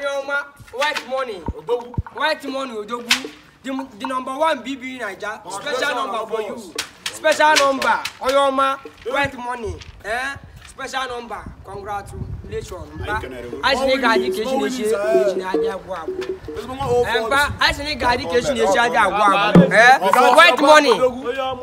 Anyoma white money Odogu. White money Odogu. The, the number one BB in Naija. Special number for you. Special number Anyoma white money. Eh? Special number. Congratulations. Mba. Asini gadi keshi neshi neshi adi agbo agbo. Mba. Asini gadi keshi neshi adi agbo agbo. White money.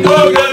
Go, go.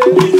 say.